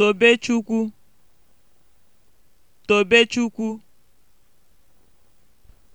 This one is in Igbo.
Tobechukwu Tobechukwu